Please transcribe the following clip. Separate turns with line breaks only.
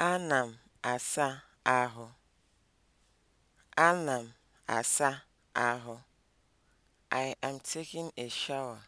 Ana m asa ahụ. Ana m asa ahụ. I am taking a shower.